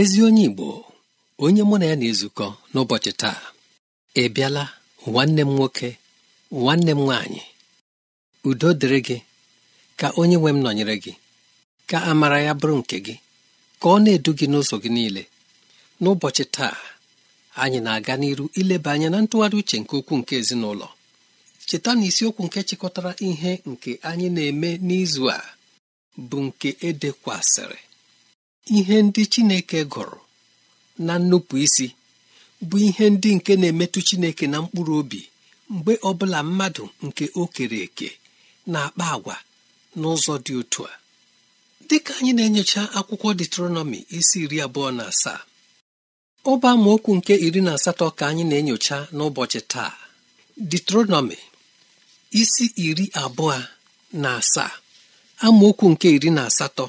ezi onye Igbo onye mụ na ya na-ezukọ n'ụbọchị taa ị bịala nwanne m nwoke nwanne m nwaanyị udo dịrị gị ka onye nwe m nọnyere gị ka amara ya bụrụ nke gị ka ọ na-edu gị n'ụzọ gị niile n'ụbọchị taa anyị na-aga n'iru ileba anya na ntụgharị uche nke ukwuu nke ezinụlọ cheta na isiokwu nke chịkọtara ihe nke anyị na-eme n'izu a bụ nke edekwasịrị ihe ndị Chineke gụrụ na nnupụ isi bụ ihe ndị nke na-emetụ Chineke na mkpụrụ obi mgbe ọbụla mmadụ nke o kere eke na-akpa agwa n'ụzọ dị otu a dịka anyị na-enyocha akwụkwọ detronọmi isi iri abụọ na asaa ọba amaokwu nke iri na asatọ ka anyị na-enyocha n'ụbọchị taa detronọmi isi iri abụọ na asaa amaokwu nke iri na asatọ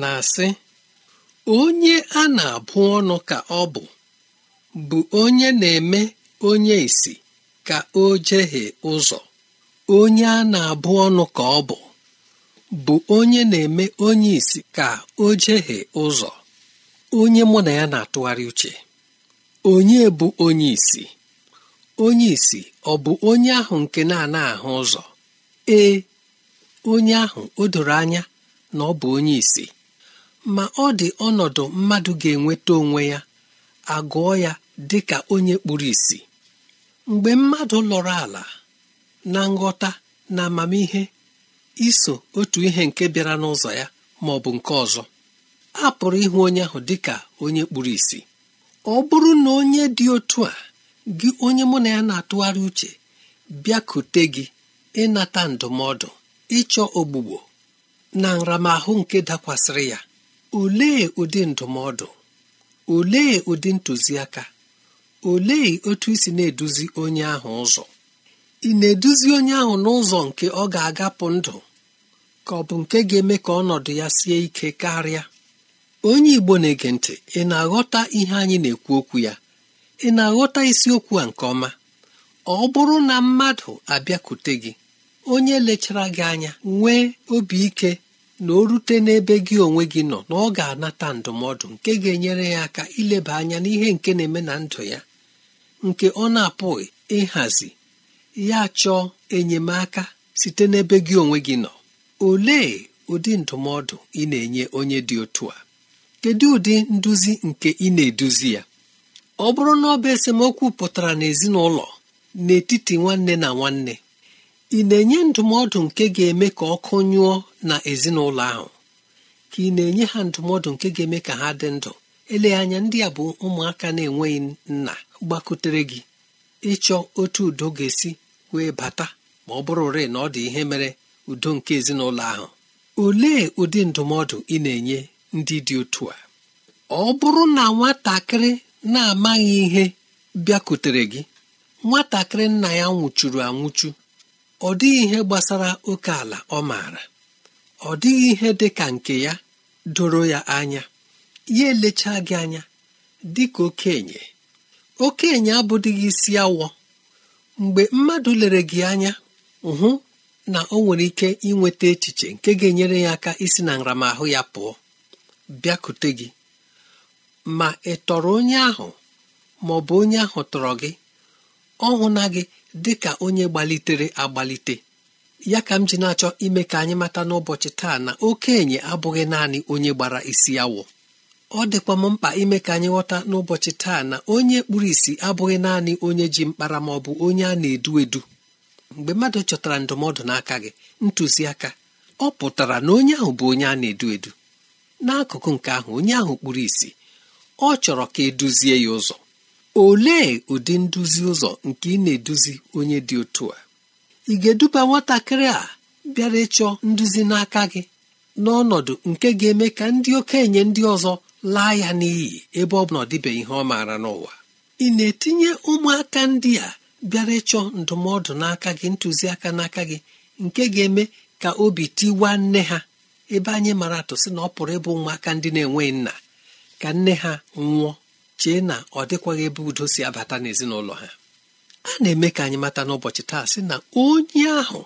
na-asị onye a na-abụ ọnụ ka ọ bụ bụ onye na-eme onye isi ka o jehie ụzọ onye a na-abụ ọnụ ka ọ bụ bụ onye na-eme onye isi ka o jehie ụzọ onye mụ na ya na-atụgharị uche onye bụ onye isi onye isi ọ bụ onye ahụ nke na-ana ahụ ụzọ ee onye ahụ o doro anya na ọ bụ onye isi ma ọ dị ọnọdụ mmadụ ga-enweta onwe ya agụọ ya dị ka onye kpuru ìsì mgbe mmadụ lọrọ ala na nghọta na amamihe iso otu ihe nke bịara n'ụzọ ya ma ọ bụ nke ọzọ a pụrụ ịhụ onye ahụ dị ka onye kpuru ìsì ọ bụrụ na onye dị otu a gị onye mụ na ya na-atụgharị uche bịakute gị ịnata ndụmọdụ ịchọ ogbugbo na nramahụ nke dakwasịrị ya olee ụdị ndụmọdụ olee ụdị ntụziaka olee otu isi na-eduzi onye ahụ ụzọ ị na-eduzi onye ahụ n'ụzọ nke ọ ga-agapụ ndụ ka ọ bụ nke ga-eme ka ọnọdụ ya sie ike karịa onye Igbo na-ege ntị ị na-aghọta ihe anyị na-ekwu okwu ya ị na-aghọta isiokwu a nke ọma ọ bụrụ na mmadụ abịakwute gị onye lechara gị anya nwee obi ike na o rute n'ebe gị onwe gị nọ na ọ ga-anata ndụmọdụ nke ga-enyere ya aka ileba anya n'ihe nke na-eme na ndụ ya nke ọ na-apụghị ịhazi ya chọọ enyemaka site n'ebe gị onwe gị nọ olee ụdị ndụmọdụ ị na-enye onye dị otu a kedu ụdị nduzi nke ị na-eduzi ya ọ bụrụ na ọ bụ esemokwu pụtara n'ezinụlọ n'etiti nwanne na nwanne ị na-enye ndụmọdụ nke ga-eme ka ọkụ nyụọ na ezinụlọ ahụ ka ị na-enye ha ndụmọdụ nke ga-eme ka ha dị ndụ eleghị anya ndị a bụ ụmụaka na-enweghị nna gbakutere gị ịchọ otu udo ga-esi wee bata ma ọ bụrụ rịị na ọ dị ihe mere udo nke ezinụlọ ahụ olee ụdị ndụmọdụ ị na-enye ndị dị otu a ọ bụrụ na nwatakịrị na-amaghị ihe bịakutere gị nwatakịrị nna ya nwụchuru anwụchu ọ dịghị ihe gbasara oke ala ọ maara ọ dịghị ihe dị ka nke ya doro ya anya ya elechaa gị anya dị ka okenye okenye abụdịghị isi awọ mgbe mmadụ lere gị anya hụ na ọ nwere ike inweta echiche nke ga-enyere ya aka isi na nramahụ ya pụọ bịakute gị ma ị tọrọ onye ahụ ma ọ bụ onye ahụ tọrọ gị ọ na gị dị ka onye gbalitere agbalite ya ka m ji na-achọ ime ka anyị mata n'ụbọchị taa na okenye abụghị naanị onye gbara isi awọ ọ dịkwa m mkpa ime ka anyị ghọta n'ụbọchị taa na onye kpuru isi abụghị naanị onye ji mkpara ma ọ bụ onye a na-edu edu mgbe mmadụ chọtara ndụmọdụ n'aka gị ntụziaka ọ pụtara na onye ahụ bụ onye a na-edu edu n'akụkụ nke ahụ onye ahụ kpuru isi ọ chọrọ ka eduzie ya ụzọ olee ụdị nduzi ụzọ nke ị na-eduzi onye dị otu a ị ga-eduba nwatakịrị a bịara ịchọ nduzi n'aka gị n'ọnọdụ nke ga-eme ka ndị okenye ndị ọzọ laa ya n'iyi ebe ọ bụ na ọ dịbeghị ihe ọ maara n'ụwa ị na-etinye ụmụaka ndị a bịara ịchọ ndụmọdụ n'aka gị ntụziaka n'aka gị nke ga-eme ka obi tiwa nne ha ebe anyị mara atụ sị na ọ pụrụ ịbụ ụmụaka ndị na-enweghị nna ka nne ha nwụọ chee na ọ dịkwaghị ebe udo si abata n'ezinụlọ ha a na-eme ka anyị mata n'ụbọchị taa sị na onye ahụ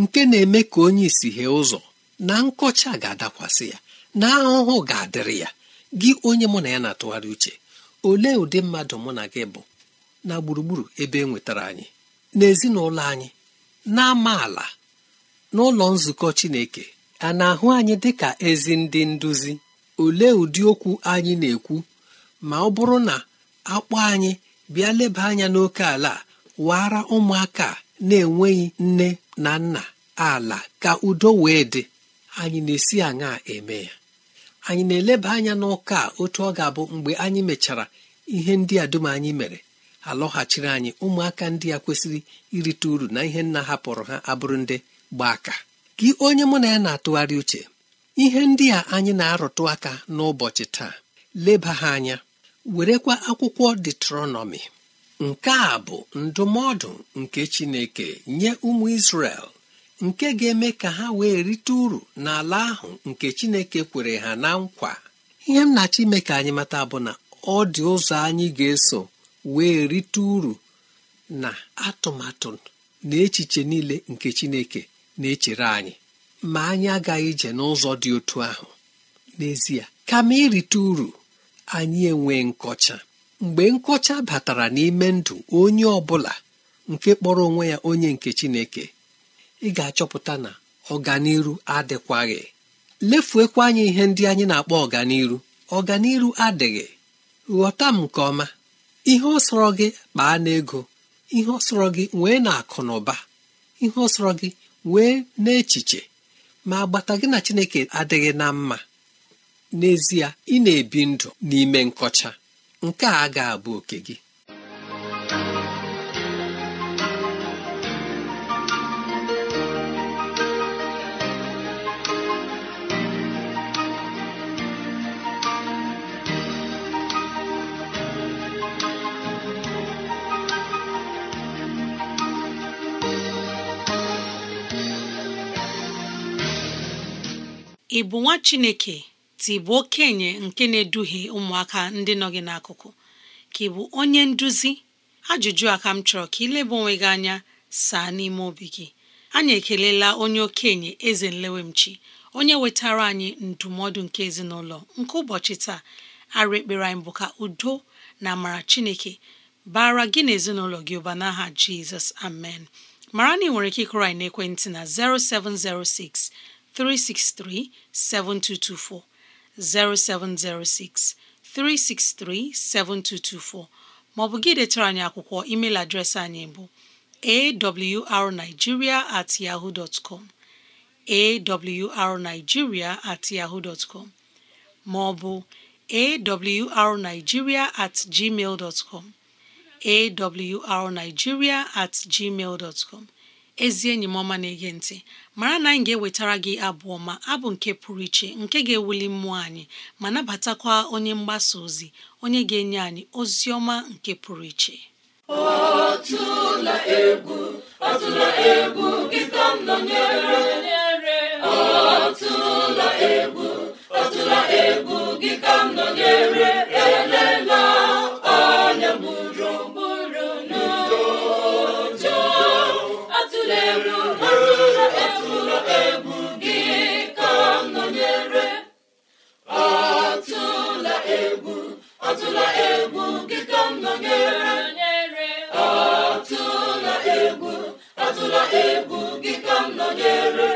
nke na-eme ka onye isi hee ụzọ na nkọcha ga-adakwasị ya na ahụhụ ga-adịrị ya gị onye mụ na ya na-atụgharị uche olee ụdị mmadụ mụ na gị bụ na gburugburu ebe e nwetara anyị n'ezinụlọ anyị na amaala n'ụlọ nzukọ Chineke a na-ahụ anyị dịka ezi ndị nduzi olee ụdị okwu anyị na-ekwu ma ọ bụrụ na akpọ anyị bịa leba anya n'oke ala wara ụmụaka na-enweghị nne na nna ala ka udo wee dị anyị na-esi aṅa eme ya anyị na-eleba anya n'ụka a otu ọ ga-abụ mgbe anyị mechara ihe ndị a dum anyị mere alọghachiri anyị ụmụaka ndị a kwesịrị irite uru na ihe nna hapụrụ ha abụrụ ndị gbaa aka gị onye mụ na ya na-atụgharị uche ihe ndị a anyị na-arụtụ aka n'ụbọchị taa leba ha anya werekwa akwụkwọ detronọmi nke a bụ ndụmọdụ nke chineke nye ụmụ isrel nke ga-eme ka ha wee rite uru n'ala ahụ nke chineke kwere ha na nkwa ihe m na ime ka anyị mata bụ na ọ dị ụzọ anyị ga-eso wee rite uru na atụmatụ na echiche niile nke chineke na-echere anyị ma anyị agaghị ije n'ụzọ dị otu ahụ n'ezie kama irite uru anyị enwe nkọcha mgbe nkọcha batara n'ime ndụ onye ọ bụla nke kpọrọ onwe ya onye nke Chineke ị ga-achọpụta na ọganiru adịkwaghị lefuekwa anyị ihe ndị anyị na-akpọ ọganiru ọganiru adịghị ghọta m nke ọma ihe ọsọrọ gị kpaa n'ego ihe ọsọrọ gị wee na akụ na ụba ihe ọsọrọ gị wee n'echiche ma agbata gị na Chineke adịghị na mma n'ezie ị na-ebi ndụ n'ime nkọcha nke a ga abụ oke gị ị bụ nwa Chineke ị bụ okenye nke na-eduhie ụmụaka ndị nọ gị n'akụkụ ka ị bụ onye nduzi ajụjụ a ka m chọrọ ka ịleba onwe gị anya saa n'ime obi gị anyị ekelela onye okenye eze nlewemchi onye wetara anyị ndụmọdụ nke ezinụlọ nke ụbọchị taa arụ ekpere anyị bụ ka udo na amara chineke bara gị na ezinụlọ gị ụba n'aha jizọs amen mara na ị nwere ike ịkụrụ anyị na'ekwentị na 0706 363 7224 0706 363 7224 maọbụ gị detara anyị akwụkwọ email adreesị anyị bụ awrnigeria at yahoo dot com at maọbụ awrnigeria at gmail at gmail ezi enyi m ọma na-ege ntị mara na anyị ga-ewetara gị abụ ọma abụ nke pụrụ iche nke ga-ewuli mmụọ anyị ma nabatakwa onye mgbasa ozi onye ga-enye anyị ozi ọma nke pụrụ iche ọtụla egwu ọtụla atụla egwu nkịta m nọnyere atụla egwu atụla egwu nkịta m nọnyere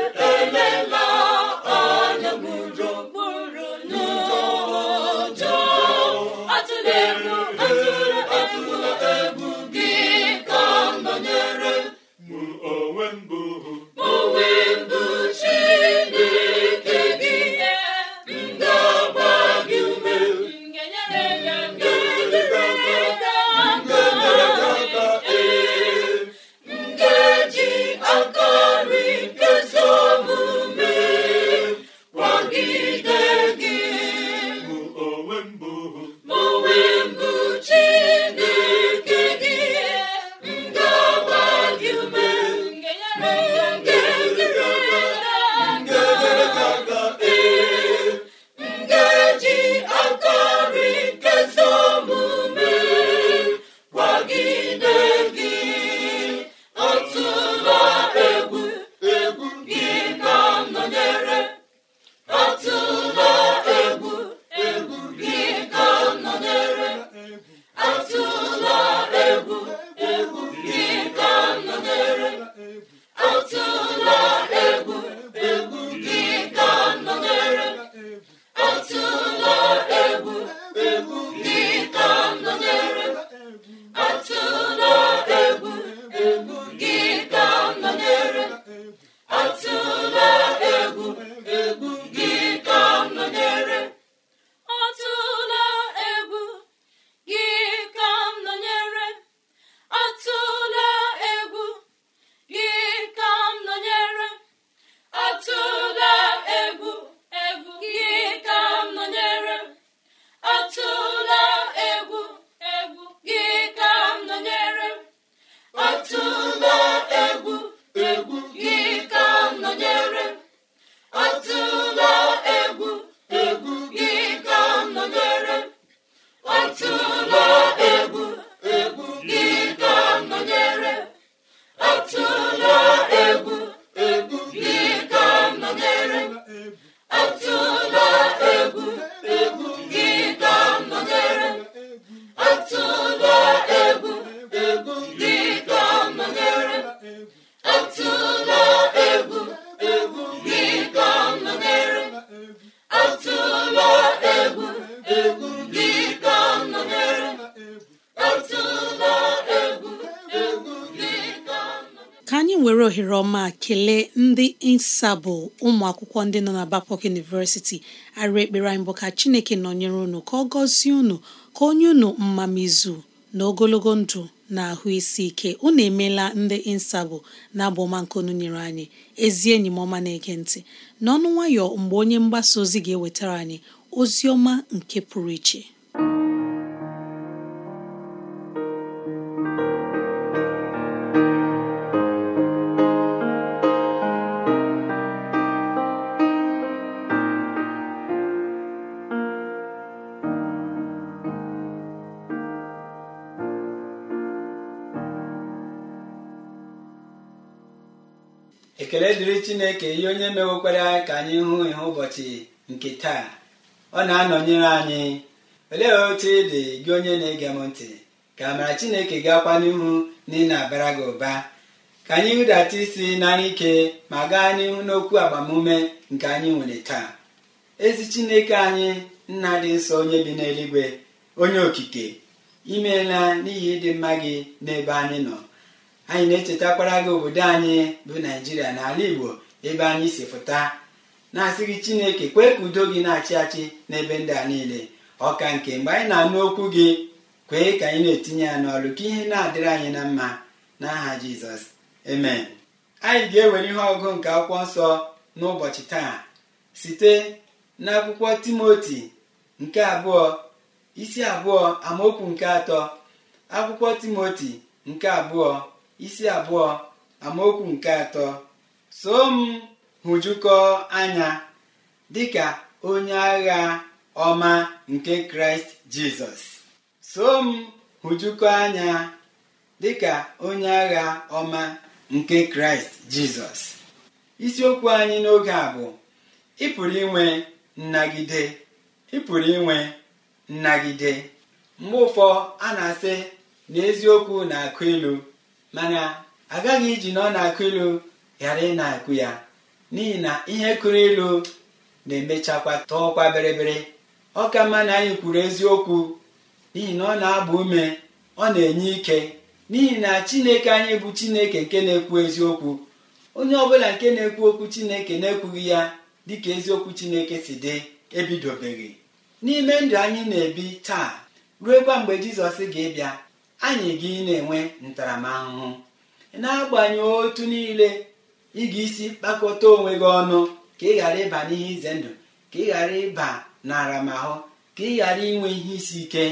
ohere ma kelee ndị nsabụ ụmụ akwụkwọ ndị nọ na bapok University arịa ekpere anyị bụ ka Chineke nọnyere unu ka ọ gọzie unu ka onye unu mmamizu na ogologo ndụ na ahụ isi ike unu emeela ndị nsabụ na abụ ọma nke unu nyere anyị ezi enyi m ọma na-ege ntị n'ọnụ nwayọ mgbe onye mgbasa ozi ga-ewetara anyị ozi ọma nke pụrụ iche ekele dịrị chineke ihe onye mewekwara ka anyị hụ ihe ụbọchị nke taa ọ na-anọnyere anyị olee otu ị dị gị onye na-ege m ntị ka amara chineke ga n'ihu na ị na-abara gị ụba ka anyị hụdata isi n'ara ike ma gaa n'ihu n'okwu agbamume nke anyị nwere taa ezi chineke anyị nna dị nsọ onye bi n'eluigwe onye okike imeela n'ihi ịdị mma gị n'ebe anyị nọ anyị na-echetakwara gị obodo anyị bụ naijiria n'ala igbo ebe anyị si pụta na-asị gị chineke kwee ka udo gị na-achị achị n'ebe ndị a niile ọka nke mgbe anyị na-anụ okwu gị kwee ka anyị na-etinye ya n'ọlụ ka ihe na-adịrị anyị na mma n'aha jizọs amen anyị ga-ewere ihe ọgụ nke akwụkwọ nsọ n'ụbọchị taa site n'akwụkwọ timoti nke abụọ isi abụọ amaokwu nke atọ akwụkwọ timoti nke abụọ isi abụọ amaokwu nke atọ so m hụjukọ anya dịka onye agha ọma nke kraịst jizọs so m hụjukọ anya dịka onye agha ọma nke kraịst jizọs isiokwu anyị n'oge a bụ ị pụrụ inwe nnagide ị inwe nnagide mgbe ụfọ a na-asị n'eziokwu eziokwu na-akụ ilu mana agaghị iji na ọ na-akụ ilu ghara ị na-akụ ya n'ihi na ihe kụrụ ilu na-emechakwa tọọkwa bịrịbịrị ọ ka mma na anyị kwuru eziokwu n'ihi na ọ na-agba ume ọ na-enye ike n'ihi na chineke anyị bụ chineke nke na-ekwu eziokwu onye ọbụla nke na-ekwu okwu chineke na-ekwughị ya dịka eziokwu chineke si dị ebidobeghị n'ime ndụ anyị na-ebi taa ruo kwa mgbe jizọs ga-abịa anyị gị na-enwe ntaramahụhụ n'agbanyeghị otu niile ị ga-esi kpakọta onwe gị ọnụ ka ị ghara ịba n'ihe ize ndụ ka ị ghara ịba naramahụ ka ị ghara inwe ihe isi ike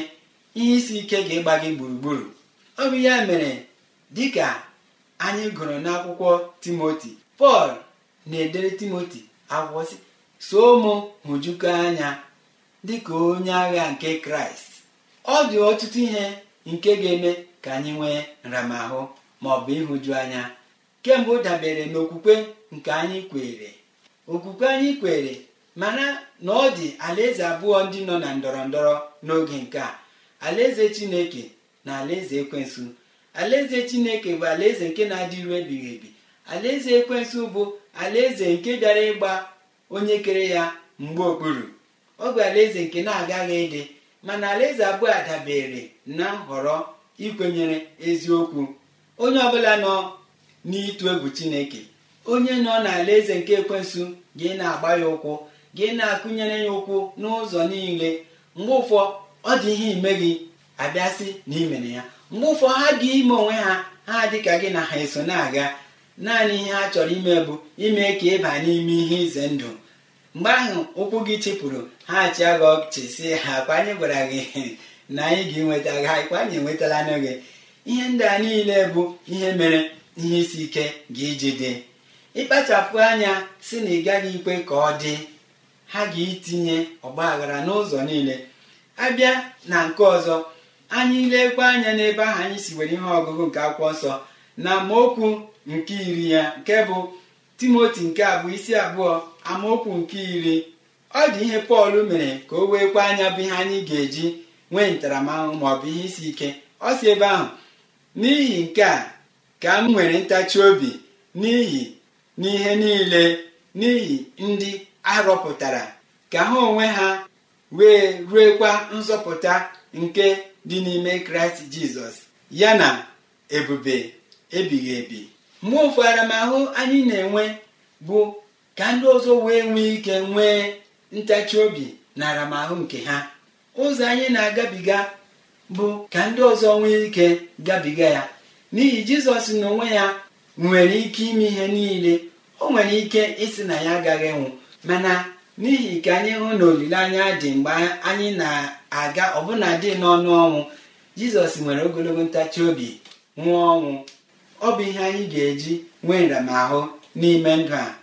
ihe isi ike ga-ịgba gị gburugburu ọ bụ ya mere dịka anyị gụrụ n'akwụkwọ timoti pọl na-edere timoti akwụkwọ si so mụ hụjuko anya dịka onye agha nke kraịst ọ dị ọtụtụ ihe nke ga-eme ka anyị nwee nramahụ ma ọ bụ ịhụju anya kemgbe ọ dabere n'okwukwe nke anyị kwere okwukwe anyị kwere mana na ọ dị alaeze abụọ ndị nọ na ndọrọ ndọrọ n'oge nke a alaeze chineke na alaeze ekwensu alaeze chineke bụ alaeze nke na-adị iru ebighị ebi alaeze ekwensu bụ alaeze nke bịara ịgba onye kere ya mgbe okpuru ọ bụ alaeze nke na-agaghị ịdị mana alaeze abụọ adabere dabere na nhọrọ ikwenyere eziokwu onye ọbụla nọ n'ịtụ egwu chineke onye nọ n'alaeze nke ekwensu gị na-agba ya ụkwụ gị na-akụnyere ya ụkwụ n'ụzọ niile mgbe ụfọ ọ dị ihe ime gị abịasị na imere ya mgbe ụfọ ha gị ime onwe ha ha dị ka gị na ha eso na-aga naanị ihe ha chọrọ ime bụ ime ka ịba n'ime ihe ize ndụ mgbe ahụ ụkwụ gị chịpụrụ ha chịa gị ọchị si ha kwa anyị gwara gị na anyị ga-enweta gị ha anyị enwetala n'oge ihe ndị a niile bụ ihe mere ihe isi ike ga iji dị ịkpachapụ anya si na ị gaghị ikwe ka ọ dị ha ga ọgba ọgbaghara n'ụzọ niile abịa na nke ọzọ anyị lekwa anya n'ebe ahụ anyị si were ihe ọgụgụ nke akwụkwọ nsọ na amaokwu nke iri ya nke bụ timoti nke abụọ isi abụọ amaokwu nke iri ọ dị ihe pọl mere ka o wee kwa anya bụ ihe anyị ga-eji nwee ntaramahụhụ maọbụ ihe isi ike ọ si ebe ahụ n'ihi nke a ka m nwere ntachi obi n'ihi n'ihe niile n'ihi ndị arọpụtara ka ha onwe ha wee ruekwa nzọpụta nke dị n'ime kraịst jizọs ya na ebube ebighị ebi mgbe ụfụ anyị na-enwe bụ ka ndị ọzọ wee nwee ike nwee ntachi obi na aramahụ nke ha ụzọ anyị na-agabiga bụ ka ndị ọzọ nwee ike gabiga ya n'ihi jizọs na onwe ya nwere ike ime ihe niile o nwere ike ịsị na ya agaghị nwụ mana n'ihi ka anyị hụ na olileanya dị mgbe anyị na-aga ọbụna dị n'ọnụ ọnwụ jizọs nwere ogologo ntachi obi nwụọ ọnwụ ọ bụ ihe anyị ga-eji nwee nramahụ n'ime ndụ a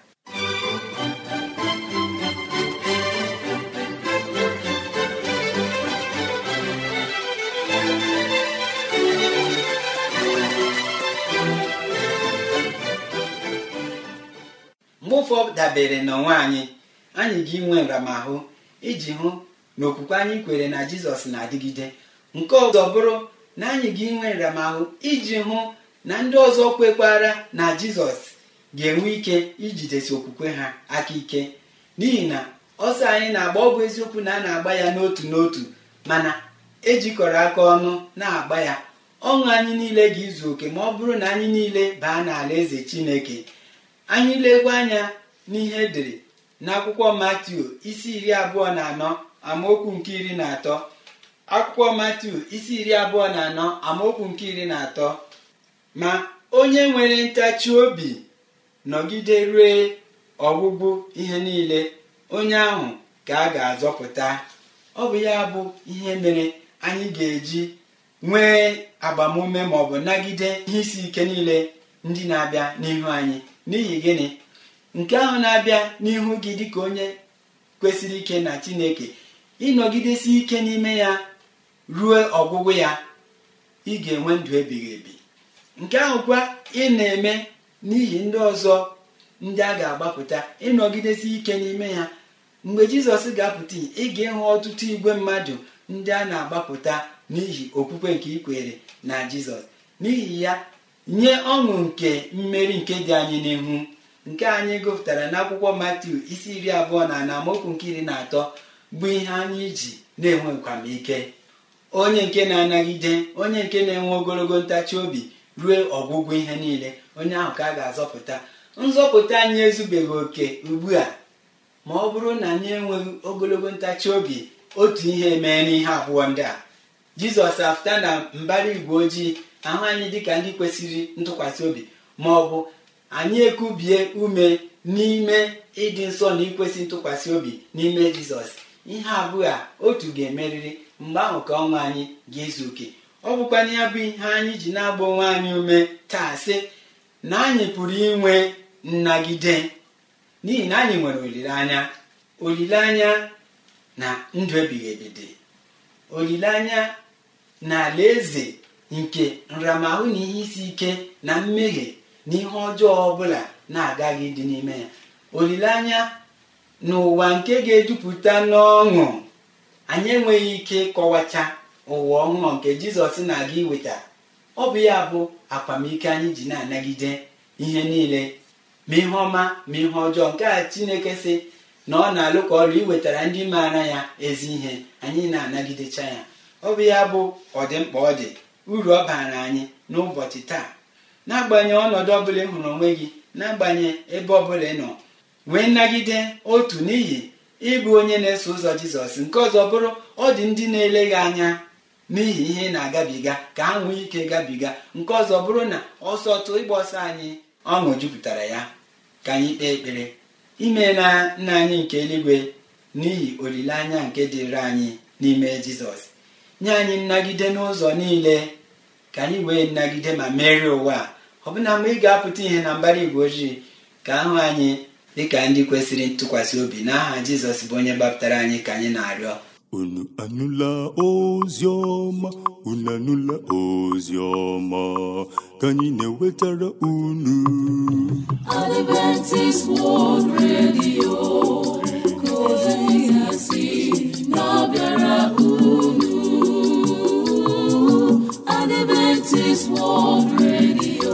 ụfọ dabere onwe anyị anyị ga-enwe nramahụ iji hụ na okwukwe anyị kwere na jizọs na-adịgide nke ọzọ bụrụ na anyị ga-enwe nramahụ iji hụ na ndị ọzọ kwekwara na jizọs ga-enwe ike ijidesi okwukwe ha aka ike n'ihi na ọsọ anyị na-agba ọ bụ eziokwu na a na-agba ya n'otu n'otu mana ejikọrọ aka ọnụ na-agba ya ọṅụ anyị niile ga-izu oke ma ọ bụrụ na anyị niile baa n'ala eze chineke anyị legwe anya n'ihe dịrị n'akwụkwọ matiu isi iri abụọ na anọ amaokwu nke iri na atọ akwụkwọ matiu isi iri abụọ na anọ amaokwu nke iri na atọ ma onye nwere ntachi obi nọgide rue ọgwụgwụ ihe niile onye ahụ ka a ga-azọpụta ọ bụ ya bụ ihe mere anyị ga-eji nwee agbamume maọbụ nagide ihe isi ike niile ndị na-abịa n'ihu anyị n'ihi gịnị nke ahụ na-abịa n'ihu gị dịka onye kwesịrị ike na chineke ịnọgidesi ike n'ime ya ruo ọgwụgwụ ya ị ga-enwe ndụ ebighị ebi nke ahụkwa ị na-eme n'ihi ndị ọzọ ndị a ga-agbapụta ịnọgidesi ike n'ime ya mgbe jizọs ga-apụta ị ga-ịhụ ọtụtụ igwe mmadụ ndị a na-agbapụta n'ihi okwukwe nke ikwere na jizọs n'ihi ya nye ọṅụ nke mmeri nke dị anyị n'ihu nke anyị gụpụtara n'akwụkwọ matiu isi iri abụọ na na amaokwu nke iri na atọ bụ ihe anyị ji na-enwe nkwamike onye nke na-anagide onye nke na-enwe ogologo ntachi obi ruo ọgwụgwụ ihe niile onye ahụ ka a ga-azọpụta nzọpụta anyị ezubeghị oke ugbu a ma ọ bụrụ na anyị enweghị ogologo ntachi obi otu ihe mee n'ihe abụọ ndị a jizọs apụta na mbara igwe ojii ahụ anyị dịka ndị kwesịrị ntụkwasị obi ma ọ bụ anyị ekubie ume n'ime ịdị nsọ na ikwesị ntụkwasị obi n'ime jizọs ihe abụọ a otu ga-emerịrị mgbe ahụ ka ọnwa anyị ga-ezu oke ọ bụkwa ya bụ ihe anyị ji na-agba onwe anyị ume taa sị na anyị pụrụ inwe nnagide n'ihi na anyị nwere olileanya olileanya na ndụ ebighị ebi dị olileanya na eze. nke nramahụ na ihe isi ike na mmehie na ihe ọjọọ ọbụla na-agaghị dị n'ime ya olileanya n'ụwa nke ga-ejupụta n'ọṅụ anyị enweghị ike kọwacha ụwa ọhụrụ nke jizọs na-aga iweta ọ bụ ya bụ akwamike anyị ji na-anagide ihe niile ma ihe ọma ma ihe ọjọọ nke a chineke sị na ọ na-alụ ka ọrụ iwetara ndị maara ya ezi ihe anyị na-anagidecha ya ọ bụ ya bụ ọdịmkpa ọ dị uru ọ baara anyị n'ụbọchị taa n'agbanyeghị ọnọdụ ọbụla ị hụrụ onwe gị n'agbanyeghị ebe ọbụla ị nọ wee nagide otu n'ihi ịbụ onye na-eso ụzọ jizọs nke ọzọ bụrụ ọ dị ndị na-ele gị anya n'ihi ihe ị na-agabiga ka ha nwee ike gabiga nke ọzọ bụrụ na ọsọ ịgba ọsọ anyị ọṅụ jupụtara ya ka anyị kpee ekpere ime na nna anyị nke eluigwe n'ihi olileanya nke dịrị anyị n'ime jizọs nye anyị nnagide n'ụzọ niile ka anyị wee nagide ma merie ụwa a ọbụna mgbe ị ga-apụta ihe na mbara igwe ojii ka ahụ anyị dịka ndị kwesịrị ntụkwasị obi n'aha jizọs bụ onye gbapụtara anyị ka anyị na-arịọ unu anụla ozi ọma unu anụla ozi ọma ka anyị na-ewetara unu Adventist World Radio ka World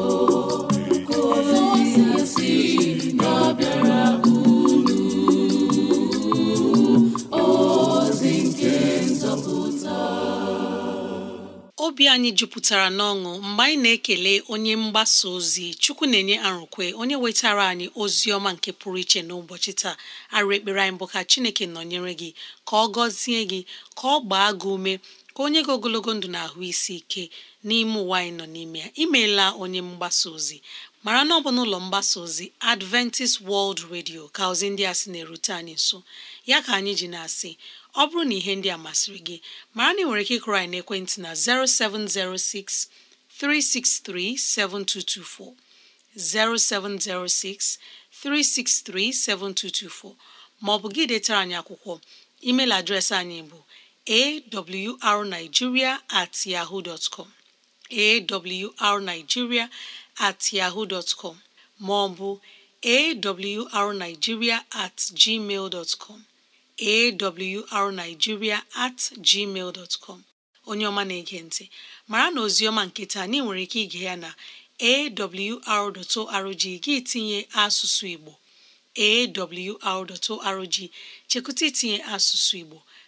ozi nke nzọpụta obi anyị jupụtara n'ọṅụ mgbe anyị na-ekele onye mgbasa ozi chukwu na-enye arụkwe onye wetara anyị ozi ọma nke pụrụ iche n'ụbọchị taa arụ ekpere anyị bụ ka chineke nọnyere gị ka ọ gọzie gị ka ọ gbaa gị ume ka onye gị ogologo ndụ na-ahụ isi ike n'ime ụwa anyị nọ n'ime ya imeela onye mgbasa ozi mara na ọ bụ n'ụlọ mgbasa ozi Adventist World Radio ka ozi ndị a sị na-erute anyị nso ya ka anyị ji na-asị ọ bụrụ na ihe ndị a masịrị gị mara na ị nwere ike ịkụrụ anyị n'ekwentị na 0706 363 7224 0706 363 7224 ma ọ bụ gị detara anyị akwụkwọ email adreesị anyị bụ awrnigeria at yahoo dot com at yahoo dot com maọbụ arigiria at gmail dot com awrnigeria at gmail dot com onye ọma na-ege ntị mara na ozioma nkịta, taa anyị nwere ike ige ya na awr.org gị tinye asụsụ Igbo awr.org chekwụta itinye asụsụ Igbo